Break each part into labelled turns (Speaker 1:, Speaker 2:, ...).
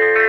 Speaker 1: thank you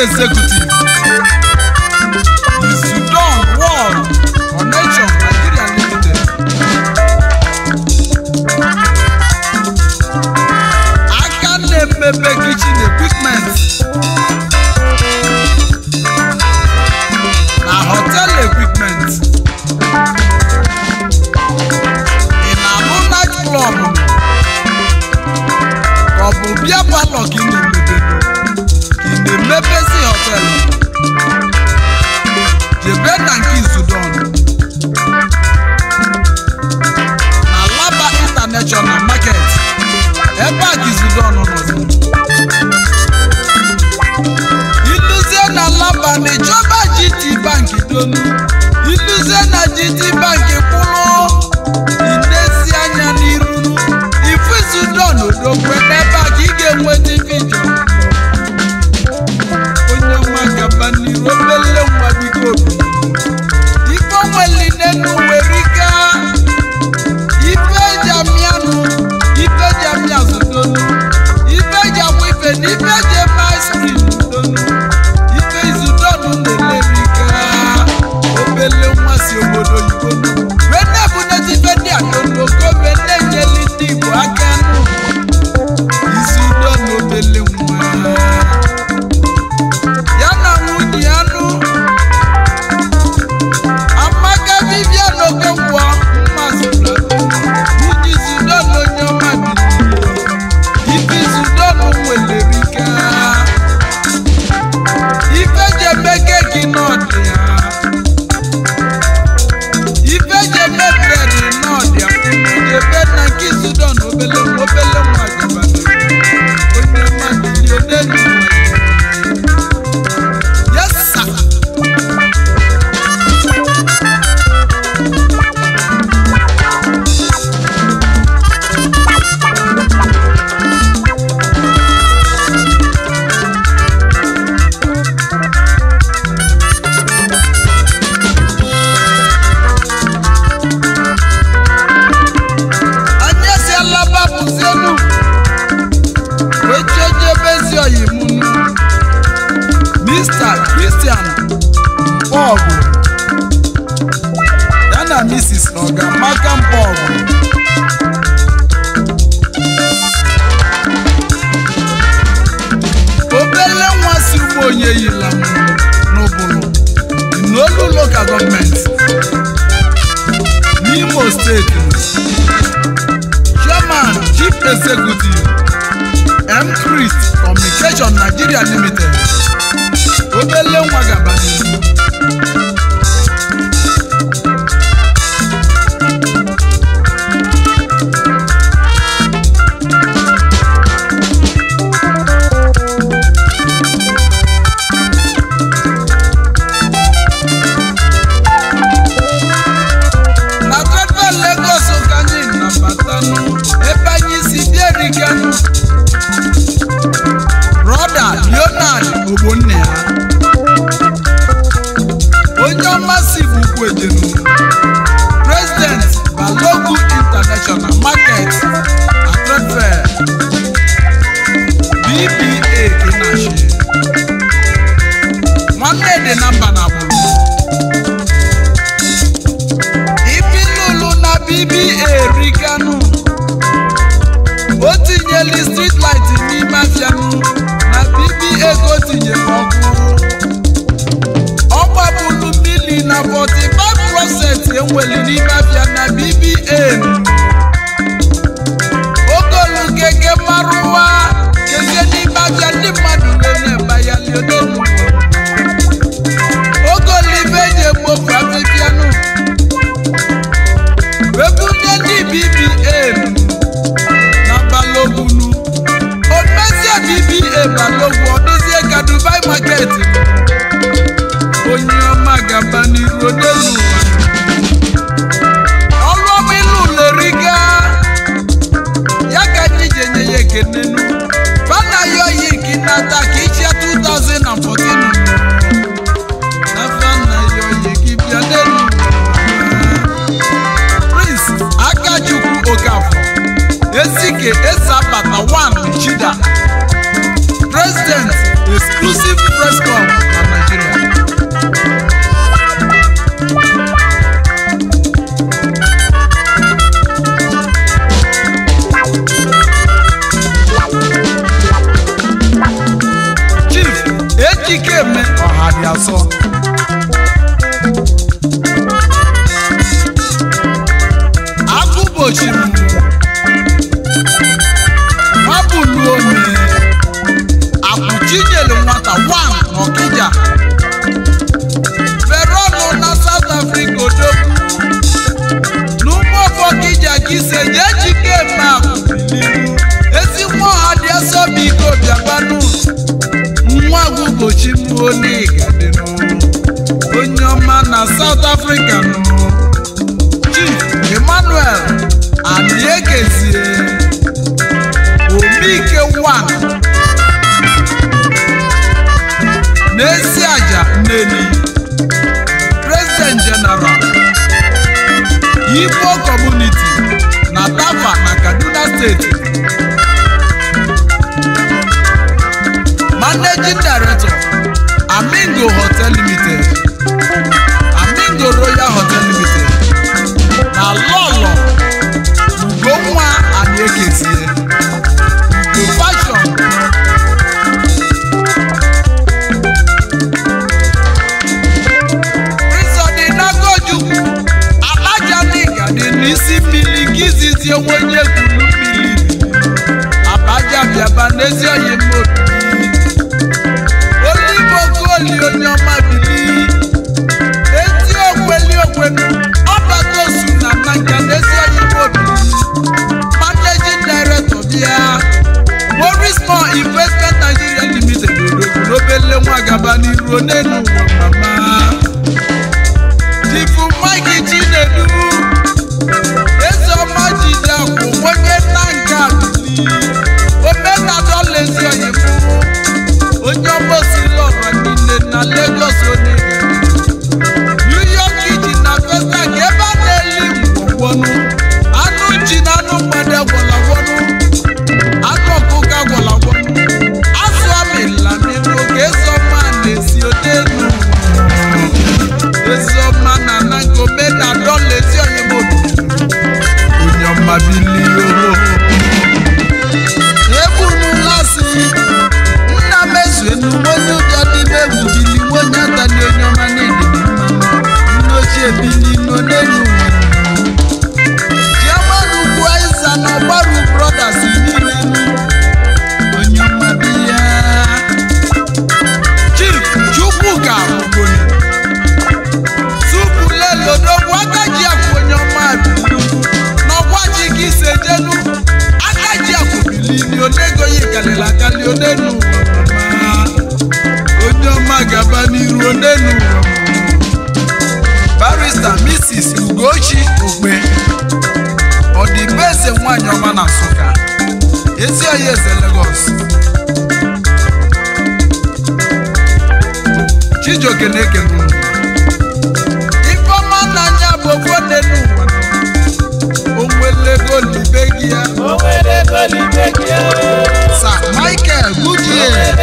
Speaker 1: executive the Sudan War Connection Nigeria Limited aka na-emebe kitchen equipment na hotel equipment ị na-alụ club ka ọ bụ the Mepesi Hotel, the Benanki Sudan, na Laba International Market, ebe a ka Sudan nọzi. Iluzie na Laba na-echọba GT Bank donu, iluzie na GT Bank Oyeyila Nubulu n'olu local gọọmenti n'Imo steeti chairman chief executive m crist communication Nigeria limited obele nwa Eh, na five percent. enwere n'ime afịa na bbm ogolu gege marụwa kezie n'ime afịa ndị mmadụ na-enye mbaya leodenu African na ezi anyị eze Lagos Chijioke na-eke Ifeọma nna anya bụ ofu onye n'ụwa ya Sir Michael Goodyear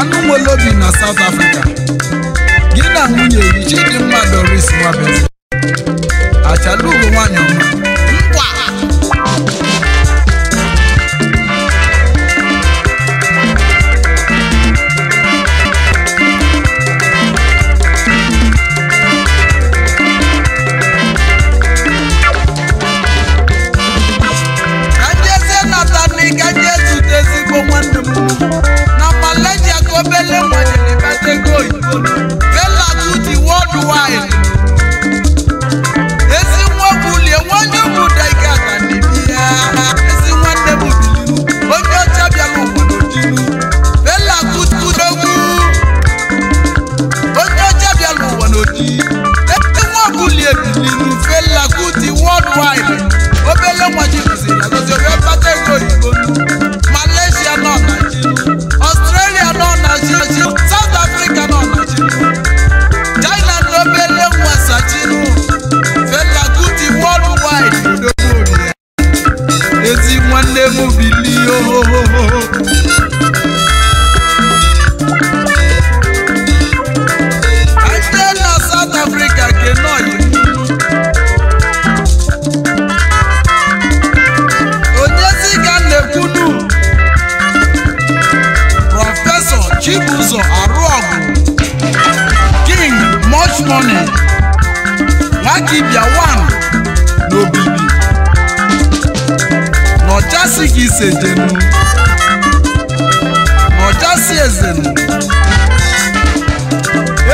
Speaker 1: anụ nwere obi na South Africa gị na nwunye gị Chidimma Doris Nwabeze achalugo nwanyị ọma fight. eze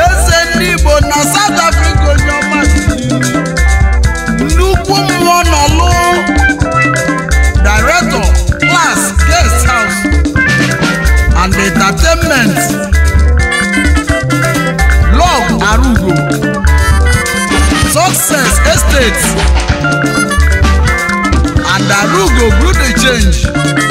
Speaker 1: eze ndị Igbo na South Africa onye ọma nnukwu mmụọ nọlụ director class guest house and entertainment log arugo success estate and arugo good change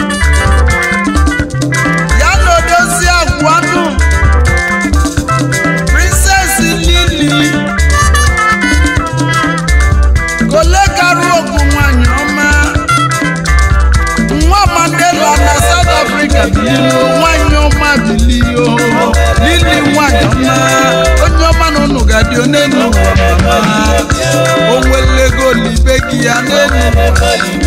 Speaker 1: onwelego na ibe gị ya n'enyi